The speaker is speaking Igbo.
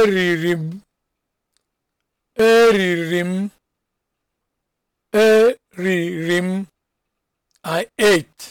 eriri m eriri m eriri m i ate